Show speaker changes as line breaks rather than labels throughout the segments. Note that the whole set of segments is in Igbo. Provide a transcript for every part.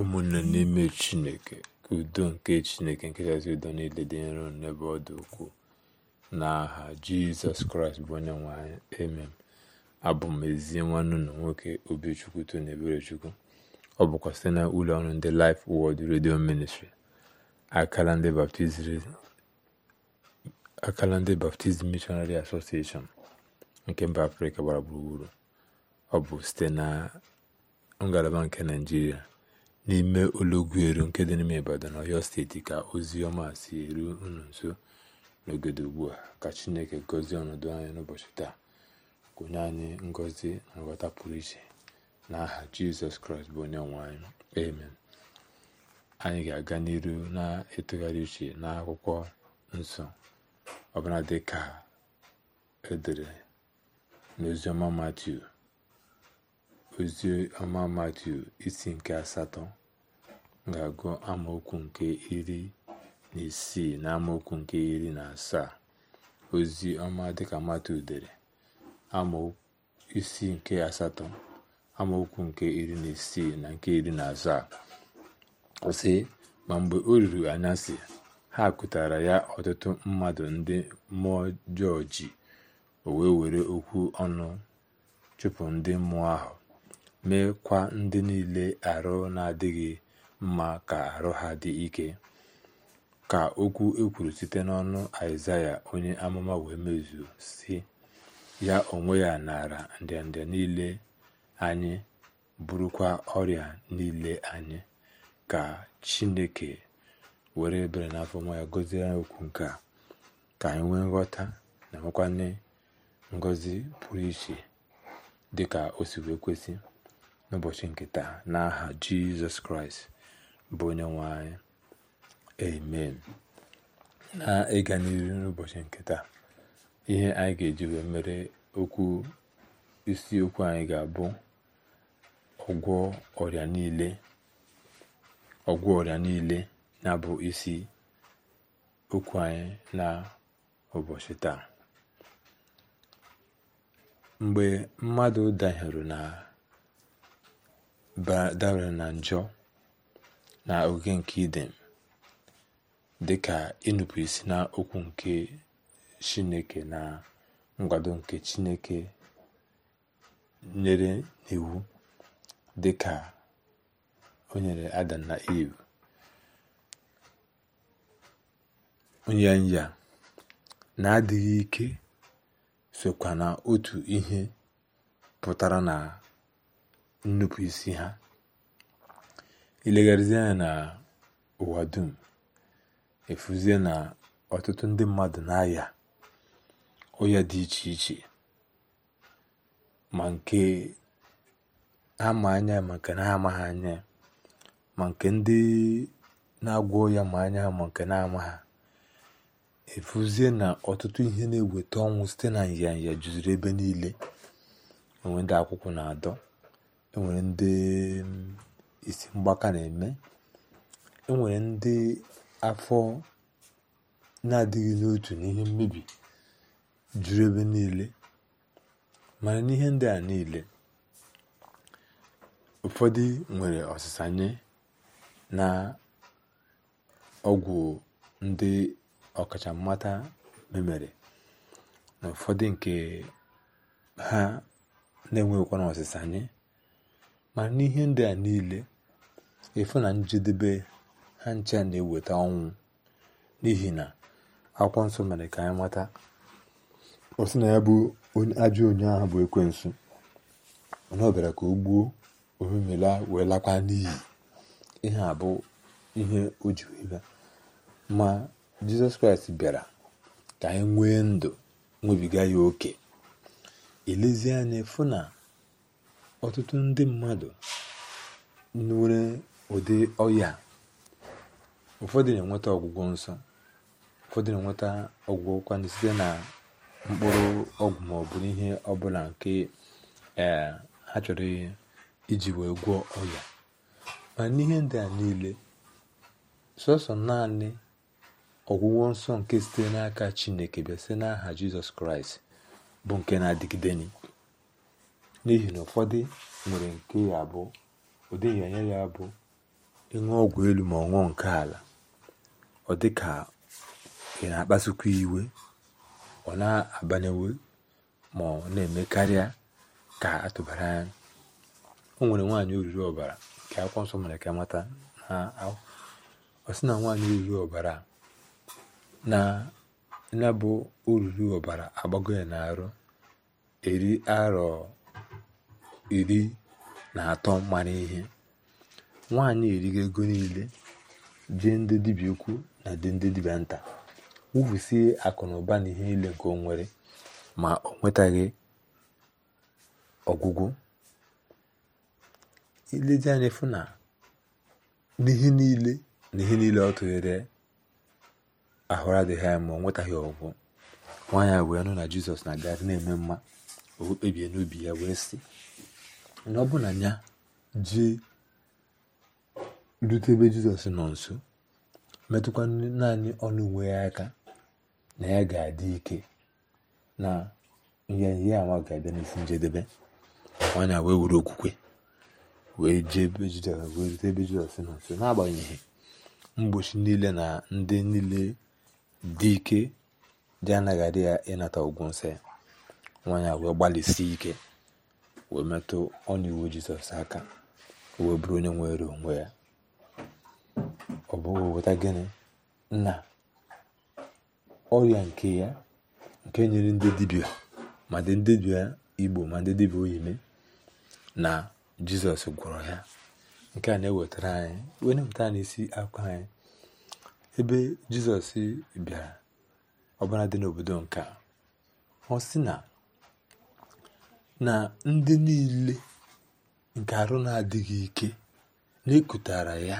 ụmụnne n'ime chineke ka udo nke chineke nkechasị udo niile dị nro n'ebe ọdụ dị ukwuu n'aha jizọs kraịst bụ onye nwanyị anyị emem abụ m ezi nwanne na nwoke obichukwu tony eberechukwu ọ bụkwa site na ụlọ ọrụ ndị laịf wọd redio ministri akala ndị baptizim mishonari asosieshọn nke mba afrịka gbara gburugburu ọ bụ site na ngalaba nke naijiria n'ime eru nke dị n'ime Ibadan ọyọ steeti ka ozi ọma si eru unu nso n'ogodo ugbu a ka chineke gọzie ọnọdụ anyị n'ụbọchị taa onye anyị ngọzi na nghọta pụrụ iche na aha jizọs kraịst bụ onye nwe anyị amen anyị ga-aga n'iru na-etụgharị uche n'akwụkwọ nsọ ọbụla dị ka edere n'oziọma matiu ozi ọma matu isi nke asatọ ga-agụ amaokwu nke iri na isii na amaokwu nke iri na asaa ozi ọma dịka matu dere isi nke asatọ amaokwu nke iri na isii na nke iri na asaa sị ma mgbe o ruru anyasị ha kụtara ya ọtụtụ mmadụ ndị mmụọ ọjọọ ji wee were okwu ọnụ chụpụ ndị mmụọ ahụ meekwa ndị niile arụ na-adịghị mma ka arụ ha dị ike ka okwu ekwuru site n'ọnụ Aịzaya onye amụma wee mezuo si ya onwe ya nara ndịnda niile anyị bụrụkwa ọrịa niile anyị ka Chineke were ebere na afọ nwa ya gọzie okwu nke a ka anyị nwee nghọta na nwekwanye ngọzi pụrụ iche dịka o si wee kwesị n'ụbọchị nke taa n'aha jizọs kraịst bụ onye nwe anyị amen na ịga n'iru n'ụbọchị nke taa ihe anyị ga-eji wee mere okwu isiokwu anyị ga-abụ ọgwọ ọrịa niile na bụ isi okwu anyị na ụbọchị taa mgbe mmadụ danyere na dabara na njọ na oge nke dị dịka ịnụpụ isi na okwu nke Chineke na nkwado nke Chineke nyere n'iwu dịka o nyere Adam na Iv na-adịghị ike sokwa na otu ihe pụtara na nnupụisi ha ilegharịzie anya na ụwa dum efuzie na ọtụtụ ndị mmadụ na-aya ọya dị iche iche ma nke ama anya ma nke na-amaghị anya ma nke ndị na-agwọ ya ma anya ma nke na-ama ha efuzie na ọtụtụ ihe na-eweta ọnwụ site na nyanya juziri ebe niile onwe ndị akwụkwọ na-adọ enwere ndị mm, isi mgbaka na-eme enwere ndị afọ na-adịghị n'otu n'ihe mmebi juru ebe niile mana n'ihe ndị a niile ụfọdụ nwere ọsịsa na ọgwụ ndị ọkachammata memere na ụfọdụ nke ha na-enweghịkwana ọsịsa ma n'ihe ndị a niile efu na njedebe ha ncha na-eweta ọnwụ n'ihi na akwụkwọ nsọ mere ka anyị mata ọ na ya bụ ajọ onye ahụ bụ ekwensu na ọ ka o gbuo omemela wee lakwa n'ihi ihe a bụ ihe o ji wee ma jizọs kraịst bịara ka anyị nwee ndụ nwebiga ya oke elezie anya fụ ọtụtụ ndị mmadụ nwere ụdị ọya ụfọdụ na-enweta ọgwụgwọ nsọ ụfọdụ na-enweta ọgwụgwọ kwanụ site na mkpụrụ ọgwụ maọbụ ihe ọbụla nke e, ha chọrọ iji wee gwọọ ọya ma n'ihe ndị a niile sọsọ naanị ọgwụgwọ nsọ nke site n'aka chineke bịa site n'aha jizọs kraịst bụ nke na-adịgide n'ihi na ụfọdụ nwere nke ya bụ ụdị ịnyanya ya bụ ịṅụ ọgwụ elu ma ọ nke ala ọ dị ka ị na-akpasukwa iwe ọ na-abanyewe ma ọ na-eme karịa ka atụbara anya o nwere nwaanyị oriri ọbara nke akwụkwọ nsọ mere ka mata ọ sị na nwaanyị oriri ọbara na ya bụ oriri ọbara agbago ya na-arụ eri arọ iri na atọ mara ihe nwaanyị erighi ego niile jee ndị dibịa ukwu na ndị dibịa nta wufusie akụ na ụba na ihe niile nke nwere ma o nwetaghị ọgwụgwụ ilezi anya fụ na n'ihe niile na ihe niile ọ tụghere ahụrụ adịghị anya ma ọ nwetaghị ọgwụgwụ nwaanyị wee nụ na jizọs na-agagharị na-eme mma o kpebie n'obi ya wee sị na ọ bụla ya jee rute ebe jizọs nọ nso metụkwa naanị ọnụ uwe ya aka na ya ga-adị ike na ya ama ga-abịa n'isi njedebe nwanyị wee were okwukwe wee jee ebe jizọs wee rute ebe jizọs nọ nso n'agbanyeghị mgbochi niile na ndị niile dị ike dị anaghị adị ya ịnata ụgwụ nsọ ya nwanyị wee gbalịsie ike wee metụ ọnya iwu jizọs aka wee bụrụ onye nwere onwe ya ọ bụghị weta gịnị na ọrịa nke ya nke nyere ndị dibia ma dị ndị dibia igbo ma ndị dibia oyime na jizọs gwọrọ ya nke a na-ewetara anyị wee na-ewetara anyị akwa anyị ebe jizọs bịara ọbara dị n'obodo nke ọ sị na na ndị niile nke arụ na-adịghị ike na ya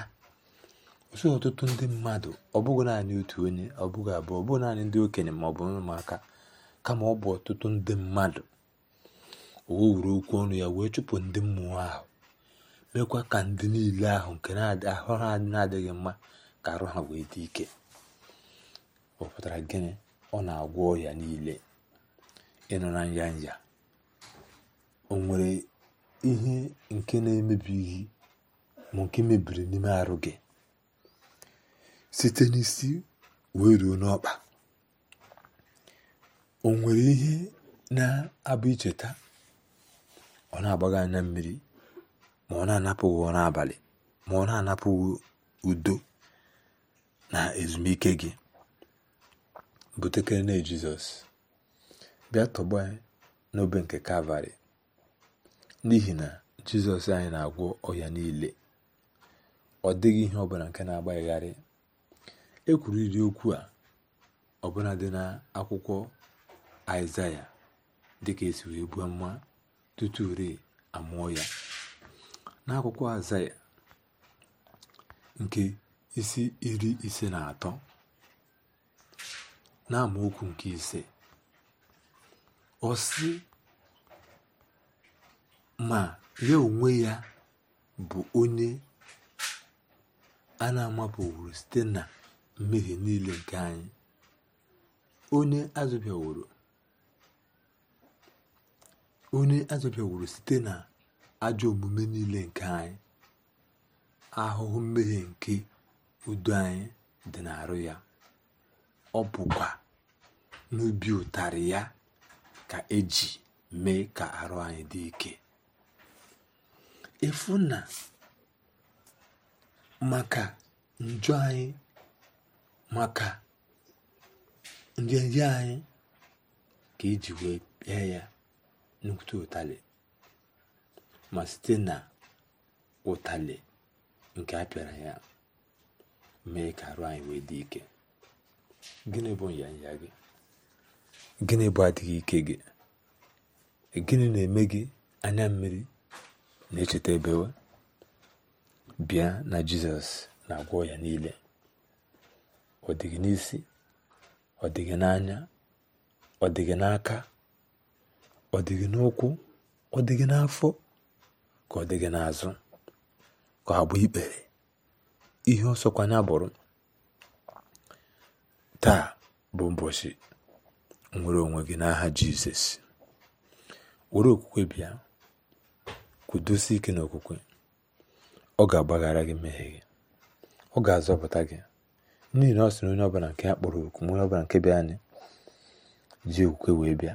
ọsọ ọtụtụ ndị mmadụ ọ bụghị naanị otu onye ọ bụghị abụọ ọ bụghị naanị ndị okenye ma ọ bụ ụmụaka kama ọ bụ ọtụtụ ndị mmadụ o wuru okwu ọnụ ya wee chụpụ ndị mmụọ ahụ mekwa ka ndị niile ahụ nke ahụ ha na-adịghị mma ka arụ ha wee dị ike ọ pụtara gịnị ọ na-agwọ ọhịa niile ịnọ na nya o nwere ihe nke na-emebighị ma nke mebiri n'ime arụ gị site n'isi wee ruo n'ọkpa o nwere ihe na-abụ icheta ọ na-agbaghị anya mmiri ma ọ na-anapụghị n'abalị ma ọ na-anapụghị udo na ezumike gị butekere na jizọs bịa tọgbọ ya n'obe nke kalvarị n'ihi na jizọs anyị na-agwọ ọya niile ọ dịghị ihe ọbụla nke na-agbaghịgharị e iri okwu a ọbụla dị na akwụkwọ aịzaya dịka esi wee buo mma tutu uri amụọ ya n'akwụkwọ aịzaya nke isi iri ise na atọ na amaokwu nke ise ọ sị ma ya onwe ya bụ onye a na amapụwuru site na niile nke anyị onye onye site na ajọ omume niile nke anyị ahụhụ mmehie nke udo anyị dị n'arụ ya ọ bụkwa n'ubi ụtarị ya ka eji mee ka arụ anyị dị ike efu na maka njọ anyị maka njenje anyị ka eji wee pịa ya n'okwute ụtalị ma site na ụtalị nke a pịara ya mee ka arụ anyị wee dị ike gịnị bụ nyanya gị gịnị bụ adịghị ike gị gịnị na-eme gị anya mmiri na-echeta ebe bịa na jizọs na-agwọ ya niile ọ dịghị n'isi ọ dịghị n'anya ọ dịghị n'aka ọ dịghị n'ụkwụ ọ dịghị n'afọ ka ọ dịghị n'azụ ka ọ gba ikpere ihe ọsọkwanya bụrụ taa bụ ụbọchị nwere onwe gị n'aha jizọs were okwukwe bịa kwudosie ike n'okwukwe ọ ga-agbaghara gị mmehie gị ọ ga-azọpụta gị n'ihi na ọ sị na onye ọbụla nke ya kpọrọ oku onye ọbụla nke bịa anyị ji okwukwe wee bịa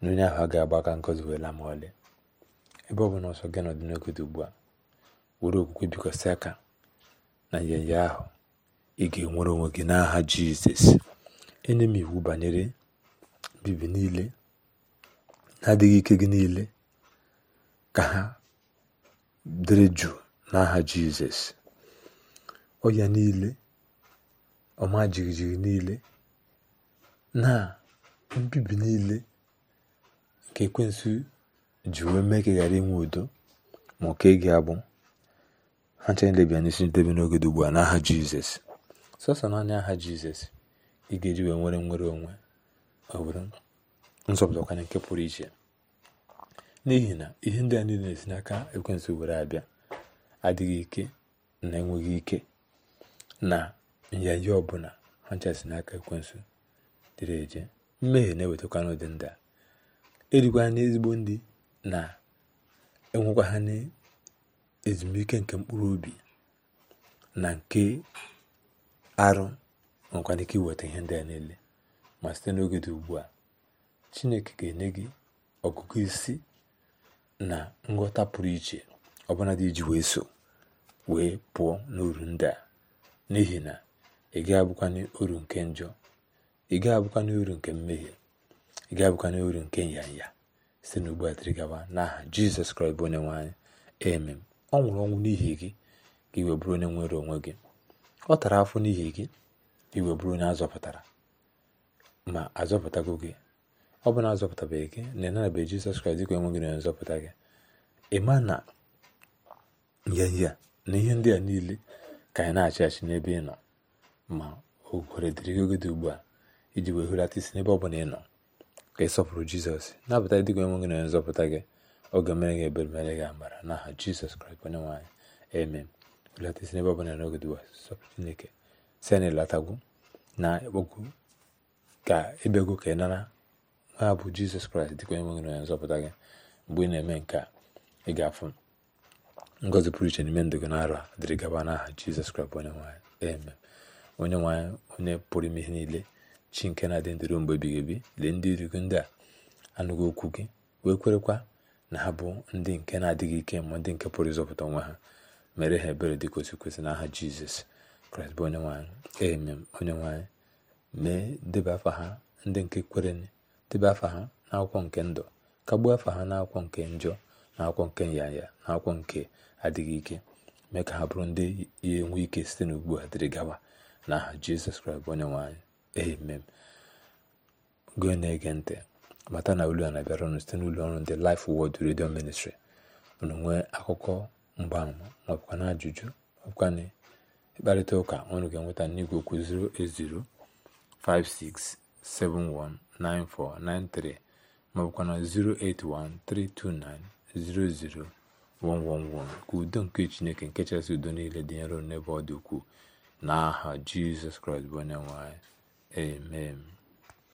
na onye ahụ a ga-agba aka ngozi wee laa ma ọlị ebe ọ bụla ọsọ gị nọdụ dị ugbu a were okwukwe bikwasị aka na nyanya ahụ ị ga-enwere onwe gị n'aha jizọs enye m iwu banyere bibi niile na-adịghị ike gị niile ka ha dịrị jụụ n'aha jizọs ọya niile ọma jijiji niile na mbibi niile nke ekwensu ji wee mee ka ị ghara inwe udo ma ọ ka ị ga-abụ ha chanelebia n'isi ndebe n'oge dị ugbu a n'aha jizọs sọsọ naanị aha jizọs ị ga-eji wee nwere nwere onwe ọ bụrụ nzọpụta nke pụrụ iche n'ihi na ihe ndị a niile na-esi n'aka ekwensụ were abịa adịghị ike na enweghị ike na nyanya ọbụla ha nchasi n'aka ekwensụ dịrị eje mmehie na-ewetakwa n'ụdị ndị a erikwa ha n'ezigbo ndị na enwekwa ha n'ezumike nke mkpụrụ obi na nke arụ nwekwana ike iweta ihe ndị a niile ma site n'oge dị ugbu a chineke ga-enye gị ọgụgụ isi na nghọta pụrụ iche ọbụla dị iji wee so wee pụọ n'uru ndị a n'ihi na ị ga-abụkwanye uru nke njọ ị ga-abụkwanye uru nke mmehie ị ga-abụkwanye uru nke nyanya site n'ugbu a gawa n'aha jizọs kraịst bụ onye nwe emem ọ nwụrụ ọnwụ n'ihi gị ka iwe bụrụ onye nwere onwe gị ọ tara afọ n'ihi gị ka iwe bụrụ onye azọpụtara ma azọpụtago gị ọ bụ na azọpụtabeghị gị na ịnanabeghị Jizọs Kraịst dịka enweghị na nzọpụta gị ị na na ya na ihe ndị a niile ka anyị na-achị achị n'ebe ị nọ ma o gwere dịrị gị oge dị ugbu a iji wee hụlata isi n'ebe ọ bụla ị nọ ka ị sọpụrụ Jizọs na-abụta dịka enweghị na nzọpụta gị oge mere gị ebere mere gị amara na aha Jizọs Kraịst onye nwanyị amen hụlata isi n'ebe ọ bụla n'oge dị ugbu a sọpụrụ Chineke si anyị na ogwu ka ebego ka ị nara a abụ jizọs kraịst dịka onye nwere nzọpụta gị mgbe ị na-eme nke a ị ga-afụ ngọzi pụrụ iche n'ime ndụ gị n'arọ a dịrị gaba n'aha jizọs kraịst bụ onye nwanyị onye nwanyị onye pụrụ ime ihe niile chi nke na-adị ndịrụ mgbe ebighị ebi lee ndị iru gị ndị a anụghị okwu gị wee kwerekwa na ha bụ ndị nke na-adịghị ike ma ndị nke pụrụ ịzọpụta onwe ha mere ha ebere dị kwesị otu kwesị n'aha jizọs kraịst bụ onye nwanyị eme onye nwanyị mee debe afọ ha ndị nke kwere debe afa ha n'akwụkwọ nke ndụ kagbuo afa ha n'akwụkwọ nke njọ na akwụkwọ nke nyanya na akwụkwọ nke adịghị ike mee ka ha bụrụ ndị ya enwe ike site n'ugbu a dịrị gawa na aha jizọs kraịst bụ onye nwe gị na-ege ntị mata na olu ya na-abịara site n'ụlọ ọrụ ndị laif Word redio Ministry ụnụ nwee akụkọ mgbaama maọbụkwa na ajụjụ maọbụkwa na ịkparịta ụka ụnụ ga-enweta n'igwe okwu 0805671 9493 maọbụkwa na 08132900111 ka udo nke Chineke nke chasị udo niile dị nro n'ebe ọ dị ukwuu n'aha Jizọs Kraịst bụ onye nwanyị. amen